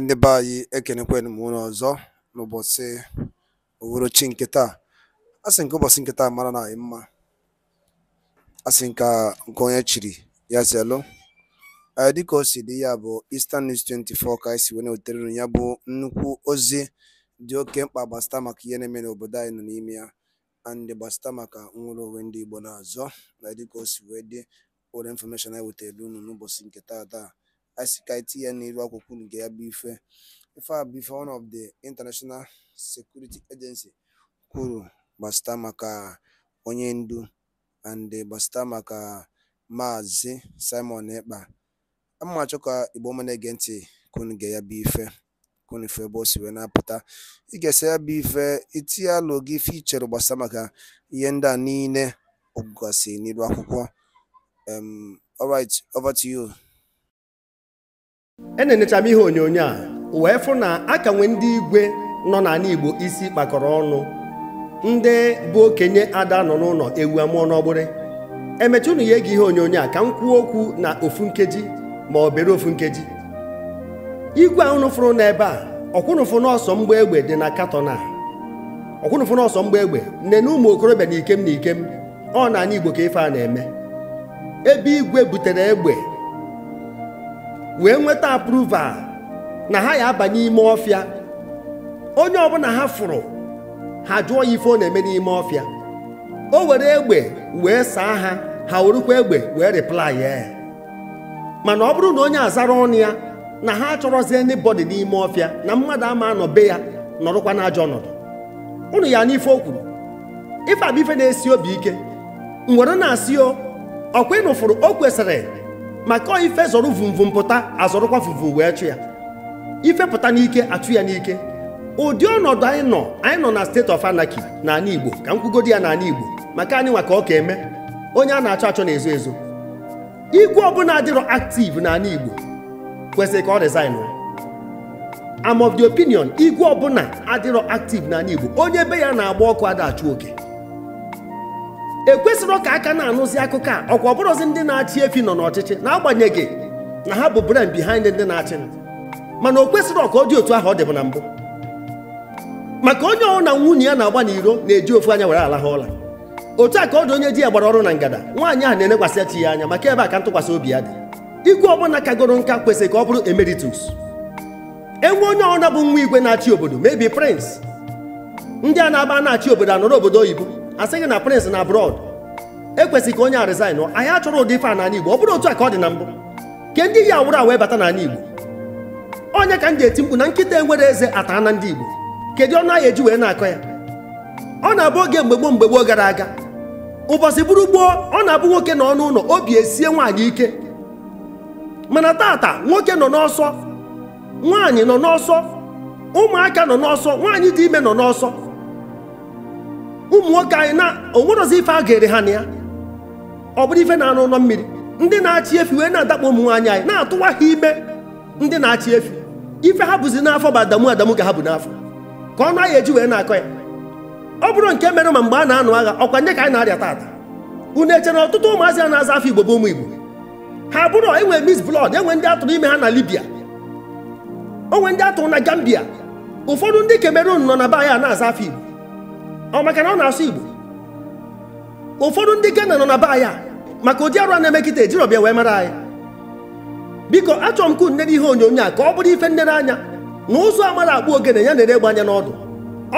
ndị be anyị ekenekwenu m unu ọzọ n'ụbọchị uhuruchi nke taa a sị nke ụbọchị nke taa mara na anyị mma a sị nke nke onye chiri ya zelụ e, dịka o si dị ya bụ Eastern News 24 ka anyị si wee na-ewetere unu ya bụ nnukwu ozi dị oke mkpa gbasịta maka ihe na-eme n'obodo anyị nọ n'ime ya andị gbasịta maka nwere onwe ndị Igbo n'azọ na e, dịka o si wee dị ụlọ infọmeshọn anyị wetere unu n'ụbọchị nke taa taa asị ka etinye n'elu akwụkwọ nke ya bụ ife ife a bụ ife one of the international security agency kwuru gbasata maka onye ndu and gbasata maka maazị simon ekpa amachọ ka igbo ọma na-ege ntị kunu ga ya bụ ife kunu ife ebe o si wee na-apụta ị ga-esa ya bụ ife itinye alụ gị ife ichere gbasata maka ihe ndị a niile ọgụgasị n'iru akwụkwọ um all right over to you enenecha m ihe onyonyo a wee fụ na aka nwee ndị igwe nọ n'ala Igbo isi kpakọrọ ọnụ ndị bụ okenye ada nọ n'ụlọ ewu amụọ n'ọgbụrị emecha ụnụ ya ege ihe onyonyo a ka m kwuo okwu na ofu nkeji ma ọ bere ofu nkeji igwe ahụnụ unu fụrụ n'ebe a ọkwụnụfụ n'ọsọ mgba egbe dị na katọn a ọkwụnụfụ n'ọsọ mgba egbe nne na ụmụ okorobịa na ikem na ikem ọ na ala Igbo ka ife a na-eme ebe igwe butere egbe wee nweta approval na ha ya abanye n'ime ọfịa onye ọbụla ha fụrụ ha jụọ ya ife ọ na-eme n'ime ọfịa o were egbe wee saa ha ha werukwa egbe wee reply ya mana ọ bụrụ na onye azara ọnụ ya na ha achọrọzi anybody n'ime ọfịa na mmadụ ama anọ be ya nọrụkwa ajọ ọnọdụ ụnụ ya n'ife o kwuru ife abụ na-esi obi ike m na-asị o ọkwa ịnụfụrụ o kwesịrị maka ife zọrọ vumvum pụta azọrọkwa vumvum wee chụ ya ife pụta n'ike achụ ya n'ike ụdị ọnọdụ anyị nọ anyị nọ na steeti of na n'ala Igbo ka m kwugodi ya n'ala Igbo maka anyị nwa ka ọ ka eme onye a na-achọ achọ na-ezo ezo igwe ọbụla adịrọ active n'ala Igbo kwesịrị ka ọ resign am of the opinion igwe ọbụla adịrọ active n'ala Igbo onye be ya na-agba ọkụ ada achụ oke ekwesịrị ka aka na-anụzi akụkọ a ọkwa ọbụrụ bụrụzi ndị na-achị efi nọ n'ọchịchị na-agbanyeghị na ha bụ brain behind ndị na-achị mana o kwesịrị ka ọ dị otu ahụ ọ dịbụ na mbụ maka onye ọrụ na nwunye ya na-agba n'iro na-eji ofu anya were alahụ ụla otu a ka ọ dị onye di ya gbara ọrụ na ngada nwaanyị ahụ na-elekwasị chi ya anya maka ebe a ka ntụkwasị obi ya dị igwe ọbụla kagoro nka kwesịrị ka ọ bụrụ emeritus enwe onye ọrụ na bụ nwa igwe na-achị obodo mebi prince ndị a na-aba na-achị obodo anọrọ obodo oyibo asịghị na prịnsị na abroad ekwesịghị ka onye a resign ahịa achọrọ ụdị ife a n'ala igbo ọ bụrụ otu a ka ọ dị na mbụ ke ndị ya wụrụ wee bata n'ala igbo onye ka m ji eti mkpu na nkịta enwere eze ataa na ndị igbo kedu ọnụ ahịa eji wee na-akọ ya ọ na-abụ oge mgbe gboo mgbe gboo gara aga ụbọchị bụrụ gboo ọ na-abụ nwoke nọ ọnụ ụlọ obi esie nwaanyị ike mana tata nwoke nọ n'ọsọ nwaanyị nọ n'ọsọ ụmụaka nọ n'ọsọ nwaanyị dị ime nọ n'ọsọ ụmụ nwoke anyị na onwerozi ife a ga-ere ha na ya ọ bụrụ ife na-anụ ụlọ mmiri ndị na-achị efi wee na-adakpọ ụmụ nwaanyị anyị na-atụwa ha ime ndị na-achị efi ife ha bụzi n'afọ bụ adamu adamu ka ha bụ n'afọ ka ọ naghị eji wee na-akọ ya ọ bụrụ nke mere ma mgbe a na-anụ agha ọkwa nye ka anyị na-arịa taata unu eche na ọtụtụ ụmụazị a na-aza afọ igbo bụ ụmụ igbo ha bụrụ enwe mis blọd enwe ndị atụrụ ime ha na libya onwe ndị atụrụ na gambia ụfọdụ ndị kemerun nọ na be anyị a na-aza afọ igbo ọ maka na ọ na-asụ Igbo ụfọdụ ndị Ghana nọ na be anyị maka ụdị arụ a na-emekịta ejirọbịa wee mara anyị biko achọrọ m ka unere ihe onyonyo a ka ọ bụrụ ife nnere anya na ụzọ amara akpụ ogene ya na-ere gbanye n'ọdụ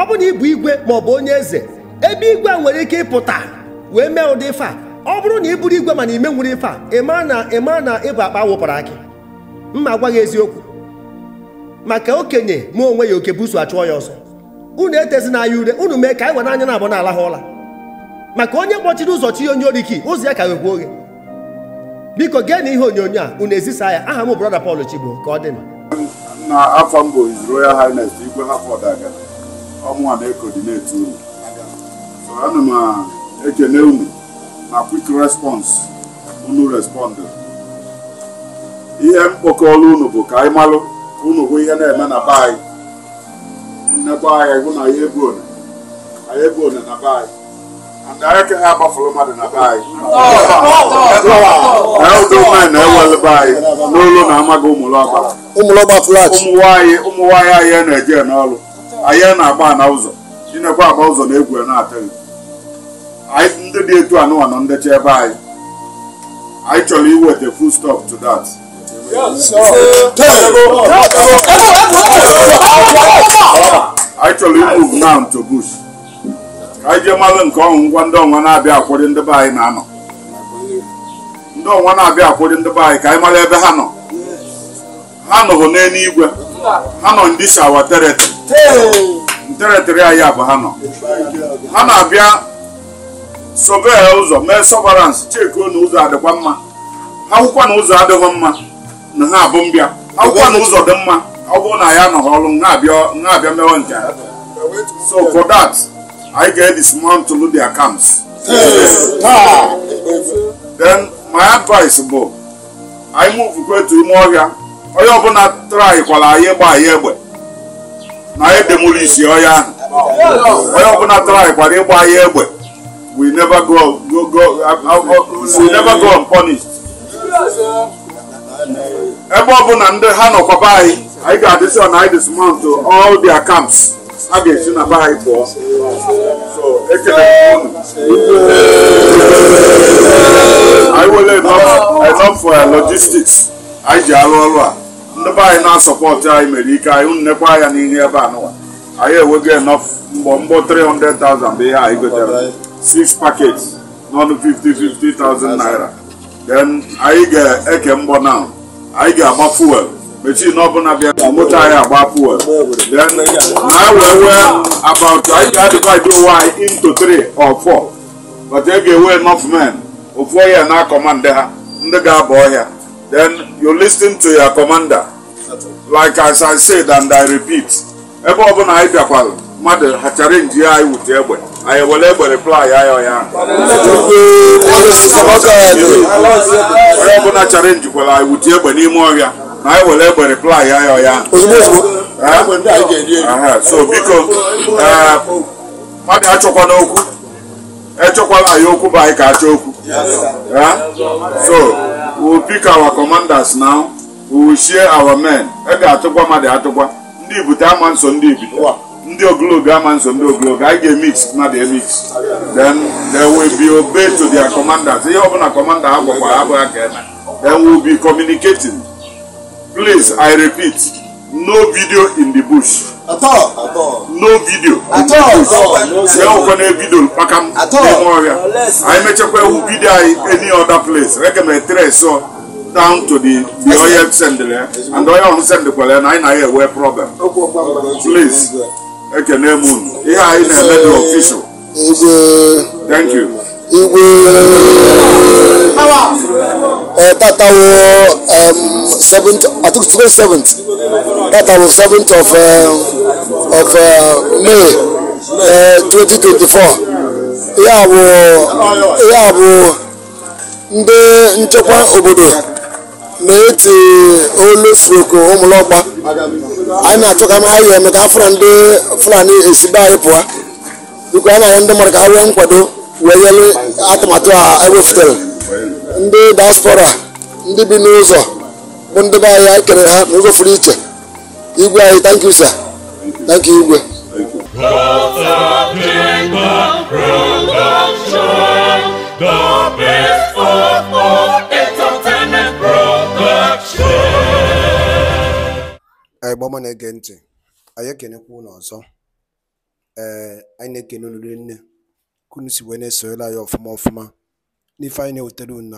ọ bụ na ịbụ igwe ma ọ bụ onye eze ebe igwe nwere ike ịpụta wee mee ụdị ife a ọ bụrụ na ị bụrụ igwe mana ime nwere ife a ịma na ịma na ịbụ akpa wụpụrụ akị mma agwaghị gị eziokwu maka okenye ma onwe ya oke busu achụọ ya ọzọ unu etezina ya ure unu mee ka anyị were anya na abụ n'ala ha ụla maka onye kpọchiri ụzọ chi onye oriki ụzọ ya ka wekwa oghe biko gee na ihe onyonyo a unu ezisa ya aha m brọda Paul Chigbo ka ọ dị na afọ mbụ His Royal Highness Igwe Harford Agana ọmụnwa na-ekodinetu unu so ana m ekele unu na quick response unu respond ihe mkpokọrọ unu bụ ka anyị malụ unu bụ ihe na-eme na be anyị nnekwa anya ịhụ na ya one anyị ebu one na be anyị na na anyị n'olu na amaghị ụmụlọgba ụmụnwaanyị ụmụnwaanyị anyị na-eje n'ọrụ anyị na-agba na ụzọ chinekwa agba ụzọ na egwu na-atụghị anyị ndị dị etu anụwa na ndecha ebe anyị anyị chọrọ iweta full stop Sam to ka anyị jee malụ nke ọnwụ ngwa ndị ọnwa na-abịa akwụrị ndị be anyị na-anọ ndị ọnwa na-abịa akwụrị ndị be anyị ka anyị mara ebe ha nọ ha nọhụ n'eluigwe ha nọ ndị shawa teretị teretịrị anyị abụ ha nọ ha na-abịa sobe ụzọ mee sọvaransị chekuo na ụzọ adịkwa mma akwụkwọ hụkwa na ụzọ adịghị mma na ha abụ mbịa akwụkwọ hụkwa na ụzọ dị mma ọ bụrụ na ya anọghị ọrụ nha abịa mewe nke So for that, I get this man to load their camps. Then my advice, Bob, I move to Imoria. Onye ọbụla traikwala anyị gba anyị egbe na anyị demolisi ọya ahụ onye ọbụla traikwala ịgba anyị egbe we never go go go uh, uh, we never go unpunished ebe ọbụla ndị ha nọkwaba anyị anyị ga-adịsị na anyị dismount all their camps a ga-esi na be anyị pụọ so ekele anyị were enough for logistics anyị ji arụ ọrụ a ndị be anyị na-asọpọtụ anyị mere ike anyị nnekwa anya n'ihe ebe a nụwa anyị enwego enough mgbọ mgbọ 300,000 bụ ihe anyị gotere 6 packets n'ọnụ 50 50,000 naira then anyị ga-eke mgbọ na anyị ga-agba fuel mechii n'ọbụla bịa moto anyị agba fuel then na wee wee about anyị ga-adịkwaji ụwa anyị into 3 or 4 but e ga-ewe enough men ofu ọhịa na kọmanda ha ndị ga abụ ọhịa then you listen to your commander like as I said and I repeat ebe ọbụla anyị bịakwara mmadụ ha chara nji ya anyị wute egbe anyị ewere egbe reply anyị ọya onye ọbụla chara njikwara anyị wute egbe n'ime ọhịa na anyị were egbe replai ya ya so biko ah, mmadụ achọkwana okwu echọkwala ya okwu bụ anyị ka achọ okwu so we will pick our commanders now we will share our men e ga-atụkwa mmadụ atụkwa ndị ibute ama nso ndị ibute ndị ogologo ama nso ndị ogologo anyị ga-emix mmadụ emix then they will be obeyed to their commanders ihe ọbụla commander ha gwakwa abụghị ka eme then we will be communicating Please, I repeat, no video in the bush. At all. At all. No video. At all. At all. Sɛ o kɔnɛ video pakam. At all. Ɛmɔ wɛrɛ. Ayi mɛ cɛ kɔ ewu video ayi any other place. Rɛgɛmɛ tɛrɛ so down to the the oil send there and oil on send kwele na na here where problem please ekene mun ihe I na-eme the official thank you igwe Eh, tata wo um, seventh i think twenty seventh tata wo seventh of uh, of uh, may uh, twenty twenty four ya bụ ya bụ ndị nchekwa obodo na-eti olu soko ụmụlọgba anyị na-achọ ka ha yi eme ka afọ ndị fulani esibe anyị pụa biko anyị na-arịọ ndị mmadụ ka ha nwee nkwado wee nyere atụmatụ a ebe ndị diaspora ndị bi n'ụzọ bụ ndị be anyị kere ha n'ụzọ furu iche igwe anyị thank you sir igwe anyị gbama na-ege ntị anyị na-ekele ụlọ ọzọ ee anyị na-ekene olulu nne kunu si wee na-esoyela ya ọfụma ọfụma n'ife anyị na-ewetara unu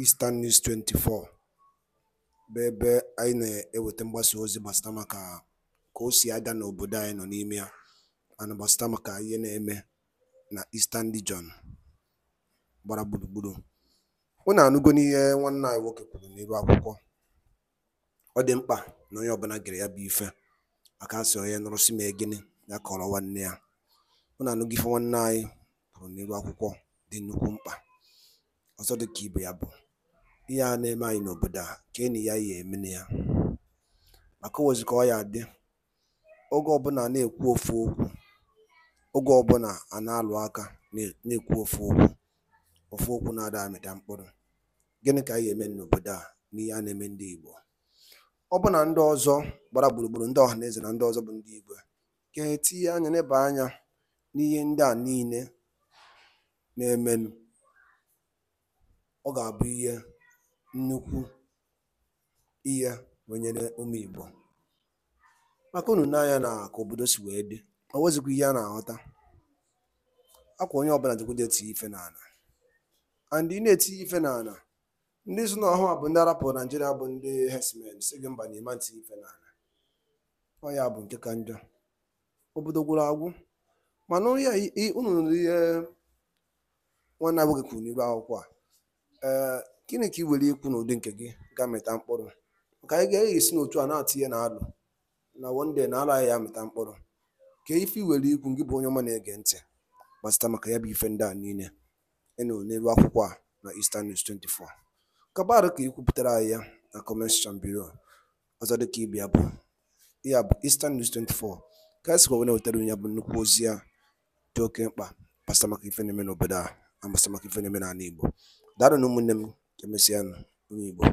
Eastern News 24 bụ ebe anyị na-eweta mgbasa ozi gbasara maka ka o si aga n'obodo anyị nọ n'ime ya ana gbasara maka ihe na-eme na Eastern Region gbara gburugburu na anụgo n'ihe nwanne anyị nwoke kwuru n'ebe akwụkwọ ọ dị mkpa na onye ọbụla gere ya bụ ife aka sị onye nụrụsị ma e gịnị ya kọrọ nwanne ya na anụgo ife nwanne anyị kwuru n'ebe akwụkwọ dị nnukwu mkpa ọzọ ka ibe ya bụ ihe a na-eme anyị n'obodo a ka enyi ya ya emene ya maka owozi ka ọ ya dị oge ọbụla na-ekwu ofu okwu oge ọbụla a na-alụ aka na-ekwu ofu okwu ofu okwu na-ada amịta mkpụrụ gịnị ka anyị eme n'obodo a n'ihe a na-eme ndị Igbo ọ bụ na ndị ọzọ gbara gburugburu ndị ọha na eze na ndị ọzọ bụ ndị Igbo ka etinye anya n'ebe anya n'ihe ndị a niile na-emenụ, ọ ga-abụ ihe nnukwu ihe wenyere ụmụ Igbo maka unu nee anya na ka obodo si wee dị O nwezikwa ihe a na-aghọta akwa onye ọbụla jikwaje eti ife n'ala and ị na-eti ife n'ala ndị so n'ọhụ a bụ ndị arapụrụ Naijiria bụ ndị herdsmen si gị mba na ịma nti ife n'ala ọ ya bụ nke ka njọ obodo gwụrụ agwụ mana onye unu ihe nwanne abụghị kwuru n'iru akwụkwọ a ee gịnị ka ị were ikwu n'ụdị nke gị ga mịta mkpụrụ ka anyị ga-eghị esi n'otu a na-atụ ihe na alụ na wonde na alụ ya mịta mkpụrụ ka ife iwere ikwu gị bụ onye ọma na-ege ntị gbasịta maka ya bụ ife ndị a niile ịnụ n'elu akwụkwọ a na Eastern News 24 kabarụ ka ikwupụtara anyị ya na comment section below ọzọ dịka ibe ya bụ ya bụ Eastern News 24 ka anyị sikwa wee na-wetara ya bụ nnukwu ozi ya dị oke mkpa gbasịta maka ife na-eme n'obodo a a maka ife na-eme n'ala Igbo daalụ na ụmụnne m emesịa nụ ụmụ Igbo